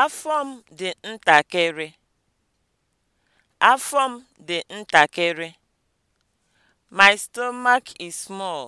Afọ m dị ntakịrị. Afọ My stomach is small.